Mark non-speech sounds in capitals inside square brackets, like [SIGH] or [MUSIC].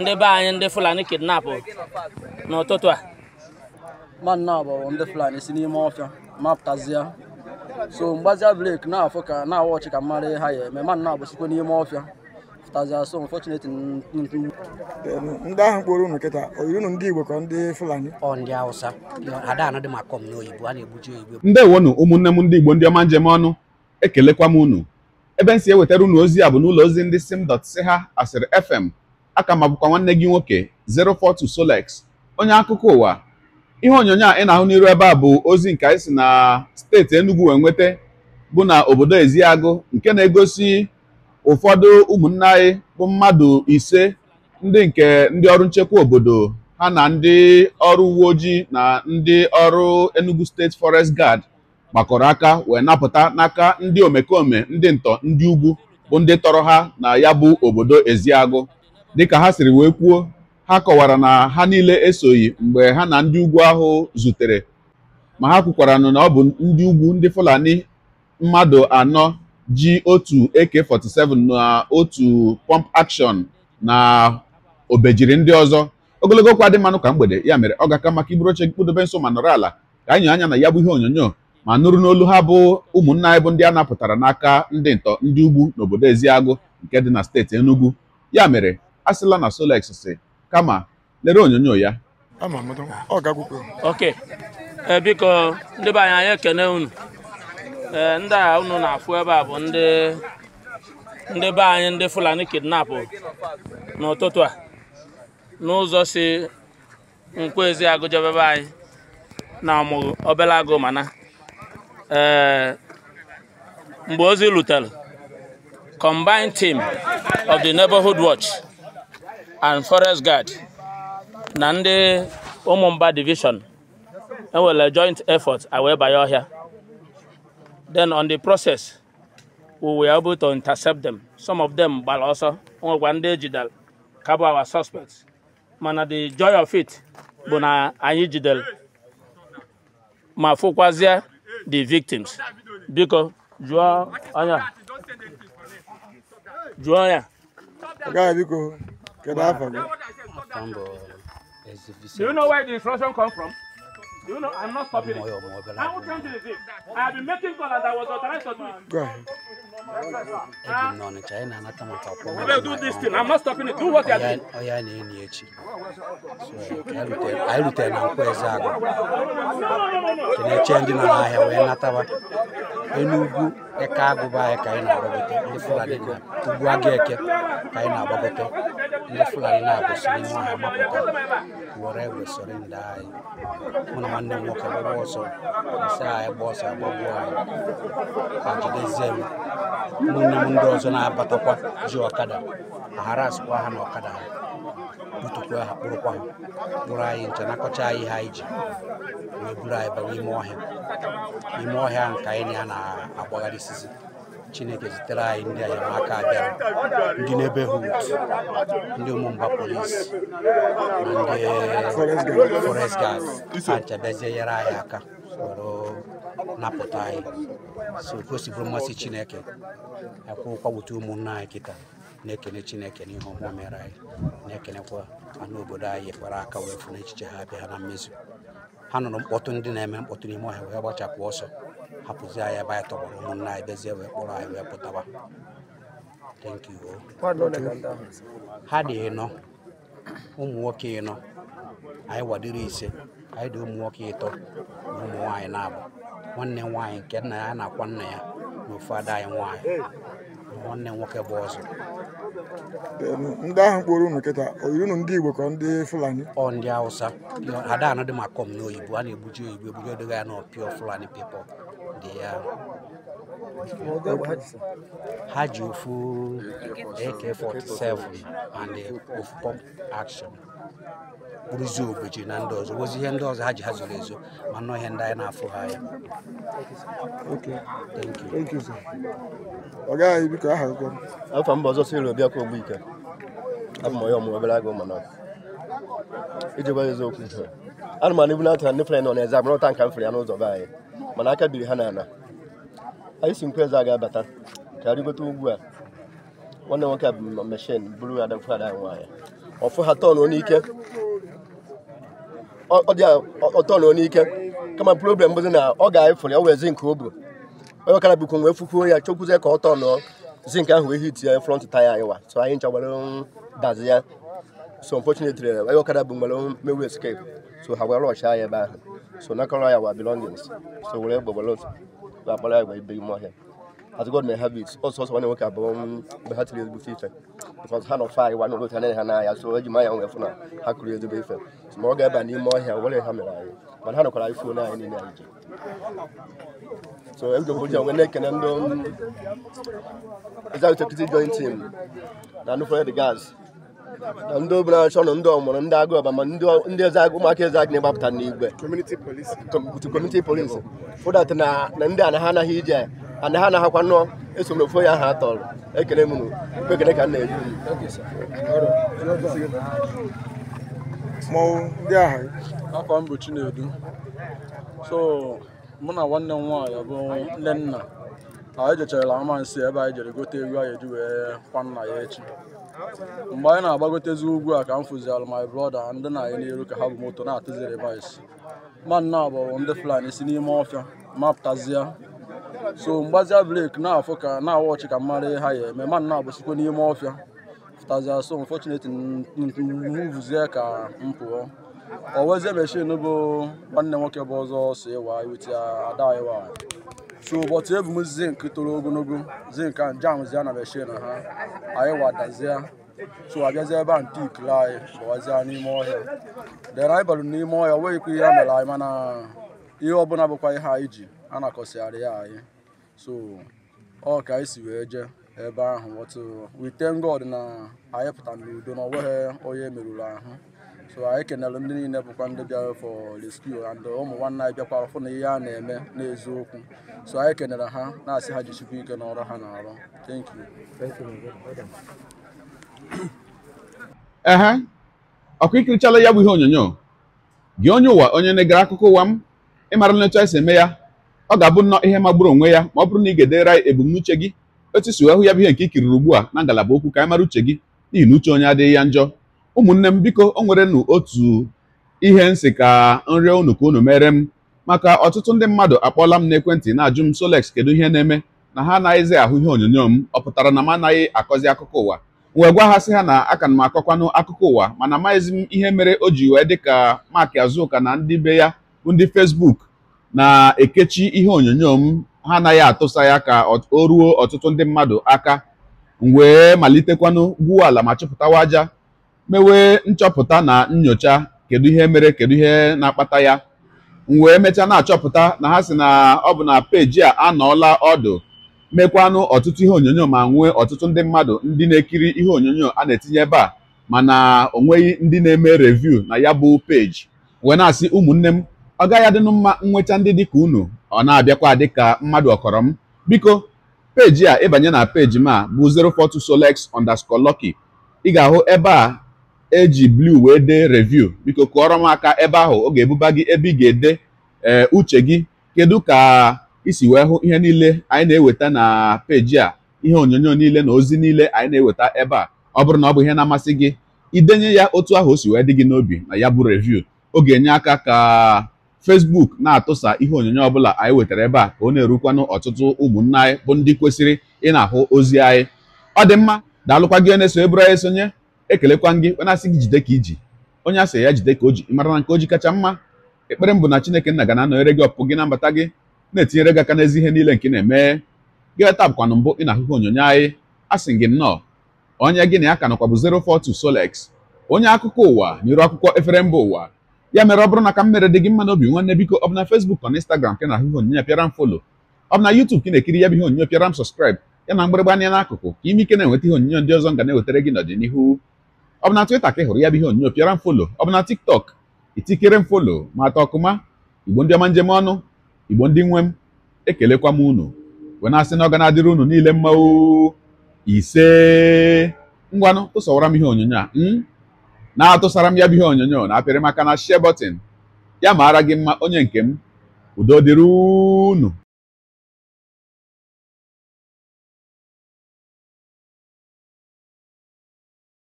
ndị be anyị ndị fulani kidnapụ n'ụtụtụ a bụ ndị fulani si n'ime ọfịa mapụtazịa so mgbazia brek na-afụ ka na-awa ọchị ka mara ha ya eme bụ sikwa n'ime ọfịa pụtazịa so ndị ahụ kpọrọ ụnụ kịta oyiri ụnụ ndị igbo ka ndị fulani ndị hausa na ụmụnne m ndị igbo ndị ọma njem ọnụ ekelekwa m unu ebe m si ewetara unu ozi a bụ n'ụlọ ozi ndị sim dọt asịrị fm aka ma bụkwa nwanne gị nwoke 042 Solex onye akụkọ ụwa ihe onyonyo a ị na-ahụ n'iru ebe a bụ ozi nke anyị si na steeti Enugu wee nweta bụ na obodo Eziagụ nke na-egosi ụfọdụ ụmụnne anyị bụ mmadụ ise ndị nke ndị ọrụ nchekwa obodo ha na ndị ọrụ uwe ojii na ndị ọrụ Enugu Steeti Forest Guard gbakọrọ aka wee napụta n'aka ndị omekome ndị ntọ ndị ugwu bụ ndị tọrọ ha na ya bụ obodo Eziagụ dịka ha siri wee kwuo ha kọwara na ha niile esoghị mgbe ha na ndị ugwu ahụ zutere ma ha kwukwara na ọ bụ ndị ugwu ndị Fulani mmadụ anọ ji otu AK47 na otu pump action na obejiri ndị ọzọ ogologo okwu adị mmanụ ka mgbede ya mere ọ ga-aka maka iburu oche gị kpụdobe nso ma nọrọ ala ka anyị anya na ya bụ ihe onyonyo ma nụrụ n'olu ha bụ ụmụnna anyị bụ ndị a napụtara n'aka ndị ntọ ndị ugwu n'obodo Eziagụ nke dị na steeti Enugu ya mere asịla na Solex si kama lere onyonyo ya oke eh, biko ndị be anyị anyị ekene unu eh, ndị a unu na-afụ ebe a bụ ndị be anyị ndị Fulani kidnap n'ụtụtụ a n'ụzọ si nkwezi agụjọba ebe anyị na ọmụgụ obele agụ mana eh, mgbe ozi lutere combined team of the neighborhood watch and forest guard na ndị ụmụmba division enwere joint effort awee banye ọhịa then on the process we were able to intercept them some of them gbara ọsọ nwekwa ndị ejidere ka our suspects mana the joy of it bụ na anyị jidere ma fụkwazie the victims biko jụọ onye jụọ ya biko From Do you know where the instruction come from? Do you know I'm not stopping it. I will come to the thing. I have been making calls as I was authorized to do it. Go ahead. Uh, do this thing. I'm not stopping it. Do what you are doing. Oh, yeah, yeah, yeah. I will tell you where is that. Can I change in an eye? We're not about Enugu, the cargo by a kind of ugbu a ga-eke ka anyị na-agbagote ne fila ina ko sini mo ha ma ko wore we sore ndai mo na mande mo ka bo so sa ji zem mo na na bato kwa ji okada haras kwa ha na okada butu kwa ha buru kwa bura yi nta na ko we bura yi ba wi mo ha wi sisi chineke zitere anyị ndị enyemaka bịara ndị neighborhood ndị ụmụmba polisi na ndị forest guard ha chebezie nyere anyị aka napụta anyị so gosibụrụ mmasị chineke akwụkwọ gbote ụmụnna anyị kịta na-ekene chineke n'ihe ọma mere anyị na-ekenekwa anụ obodo anyị kpara aka wee fụ n'echiche ha abịa ha na mmezu ha nụrụ mkpọtụ ndị na-eme mkpọtụ n'ime ọhịa wee gbachapụ ọsọ hapụzi anyị ebe anyị tọgbọrọ ụmụnna anyị bezie wee kpọrọ anyị wee pụtaba ha dị ịnọ ụmụ nwoke ịnọ anyị wadiri ise anyị dị ụmụ nwoke ịtọ na ụmụ nwaanyị na-abụ nwanne nwaanyị nke nna ya na-akwa nna ya na ofu ada anyị nwaanyị nwanne nwoke bụ ọzọ ndị ahụ kpọrọ unu taa oyiri ndị Igbo ka ndị Fulani ọ ndị Hausa ada dị ma kọm n'oyibo a na-egbuji oyibo egbuji edoga ya n'ọpịọ Fulani pipo dị ya ha ji ofu AK47 and ofu pump action bụrụzie obochi na ndị ọzọ wozi ihe ndị ọzọ ha ji ha zoro ezo ma nọ ihe ndị anyị na-afụ ha anya ọga anyị biko aha gụgọ afọ mba ọzọ siri obiakwa ogbike abụ m onye ọmụrụ obere agụ mana iji gwa eziokwu ana m anibu na-atụ ndị fere nọ n'eze agbara nka m fere ya n'ụzọ be anyị mana aka biri ha n'ala anyị si nkwa eze a ga-abata ka arịgote ugwu a nwanne nwoke a bụ meshin bụrụ ada mfụ ada anyị nwaanyị ọfụ ha tọn n'ike ọ dị ọtọn n'ike kama problem bụzi na ọ ga-efere ya wee zink o bu onye ọkara bụkwa nwee fukwuo ya chekwuzie ka ọ tọn zink ahụ wee hit ya front taya anyị wa so anyị ncha gbara dazi ya so unfortunately onye ọkara bụ nwere mewu escape so ha gwara ọcha ya ebe ahụ so nakọrọ ya wa belongings so were gbọgbara akpara ya gwa ibe ime ọhịa as God may have it nwoke abụọ mgbe ha tiri ezigbo ife because ha nọ fa anyị nwana i so na kụrụ ezigbo ife ga-eba ọhịa ha mere anyị mana ha nọkwara ife onye anyị niile so na ndị executive joint team na anụfere the na ndị achọ ndị ọmụrụ na-agbapụta n'igwe community police na ndị a na ha anaghị ije and ha na-ahakwa nnọọ esom na ofu ya ahụ atọrọ ekele m ekele ka m na eju. mmọnwụ ndị ahụ afọ m Chinedu so mụ na nwanne m nwaanyị bụ nne nna anyị jechara amansi ebe anyị jere gote egwu anyị eji wee kwa nna ya echi mgbe anyị na-agbagotezi ugwu a ka m fụzialụ my brother ndị na anyị n'elu ka ha bụ moto na-atụzi revise ma nna bụ ndị Fulani si n'ime ọfịa mapụtazia so mgbazia blake na-afụ ka na-awa ọchị ka mara ha ya eme mmadụ na-agbụsịkwa n'ime ọfịa fụtazia so unfortunately muvuzie ka m pụọ owezie meshin bụ nwanne nwoke bụ ọzọ so ịwa iweta ya ada ịwa so ụbọchị ebu m zink toro ogologo zink a jamzie na meshin ha anyị wadazie so abịazie ebe a nte ikiri anyị gbawazie n'ime ọhịa dere anyị barụ n'ime ọhịa o nweghịkwa ihe a mere anyị mana ihe ọbụla bụkwa ihe anyị ji a na-akọsịgharị ya anyị so ọ ka anyị si wee jee ebe ahụ wọtụ uh, wite God na anyị pụtara n'udo na onweghị onye merụrụ ahụ so anyị kenere ndị niile bụkwa ndị bịara for rescue and ụmụ nwanne anyị bịakwara fụ na ihe a na-eme n'eziokwu so anyị kenere ha na-asị ha jichikwa ike n'ọrụ ha na-arụ [COUGHS] ehe ọkụ ikirichala ya bụ ihe onyonyo gị onye ụwa onye na-egara akụkọ ụwa m ịmara nletu anyị si eme ya ọ ga-abụ nnọọ ihe magburu onwe ya ma ọ bụrụ na ị ga-edere anyị ebumnuche gị otu si wee hụ ya bụ ihe nke ikiriri ugbu a na ngalaba okwu ka anyị mara uche gị n'ihi na uche onye adịghị ya njọ ụmụnne m biko o nwere nụ otu ihe nsị ka nrịọ unu ka unu mere m maka ọtụtụ ndị mmadụ akpọọla m n'ekwentị na-ajụ m Solex kedu ihe na-eme na ha anaghịzi ahụ ihe onyonyo m ọ pụtara na m anaghị akọzi akụkọ ụwa wee gwa ha sị ha na aka m akọkwanụ akụkọ ụwa mana amaghịzi m ihe mere o ji wee dị ka Mark na ndị be ya bụ ndị fesbuk na-ekechi ihe onyonyo m ha anaghị atụsa ya ka o ruo ọtụtụ ndị mmadụ aka wee malitekwanụ gwuo ala ma chọpụtawa aja mewe nchọpụta na nyocha kedu ihe mere kedu ihe na-akpata ya wee mechaa na-achọpụta na ha si na ọ bụ na peji a anọọla ọdụ mekwanụ ọtụtụ ihe onyonyo ma nwee ọtụtụ ndị mmadụ ndị na-ekiri ihe onyonyo a na-etinye ebe a mana o nweghị ndị na-eme reviu na ya bụ peji wee na-asị ụmụnne m ọ gaghị adịnụ mma nweta ndị dịka unu ọ na-abịakwa dịka mmadụ ọkọrọ m biko peji a ịbanye na peji m a bụ 042 solex underscore lucky ị ga-ahụ ebe a eji blue wee dee review biko kụọrọ m aka ebe ahụ ọ ga-ebuba gị ebe ị ga-ede ee eh, uche gị kedu ka isi wee hụ ihe niile anyị na-eweta na peji a ihe onyonyo niile na ozi niile anyị na-eweta ebe a ọ bụrụ na ọ bụ ihe na-amasị gị idenye ya otu ahụ o si wee dị gị n'obi na ya bụ review ọ ga-enye aka ka Facebook na-atụsa ihe onyonyo ọbụla anyị wetara ebe a ka ọ na-erukwanụ ọtụtụ ụmụnna anyị bụ ndị kwesịrị ị na-ahụ ozi anyị ọ dị mma daalụkwa gị na-eso eburu anyị sonye ekelekwa gị wenasị gị jide ka iji onye asị ya jide ka o ji mara na nke o ji kacha mma ekpere mbụ na Chineke nna ga na-anọnyere gị ọpụpụ gị na mbata gị na-etinyere gị aka n'ezi ihe niile nke na-eme gị ta bụkwanụ mbụ ị na-ahụhụ onyonyo anyị asị gị nnọọ onye gị na ya ka nọkwa bụ 042 onye akụkọ ụwa n'iru akwụkwọ efere mba ụwa ya mere ọ bụrụ na ka m mere dị gị mma n'obi nwanne biko ọ bụ na Facebook ọ na Instagram ka na-ahụ ihe onyinye pịara m folo ọ bụ na YouTube ka ị na-ekiri ya bụ ihe onyinye pịara m sọskraịb ya na mgbịrịgba anya n'akụkụ ka ime ike na-enweta ihe onyinye ndị ọzọ m ga na-ewetara gị n'ọdịnihu ọ bụ na Twitter ka ị hụrụ ya bụ ihe onyinye pịara m folo ọ bụ na TikTok itikere m folo ma ata ọkụma igbo ndị ọma njem ọnụ igbo ndị nwe m ekelekwa m unu wee na-asị na ọ ga na-adịrị unu niile mma ise ngwanụ tụsọwara m ihe onyonyo a hmm? na-atụsara m ya bụ ihe onyonyo na apịrị maka na share button ya maara gị mma onye nke m udo dịrị unu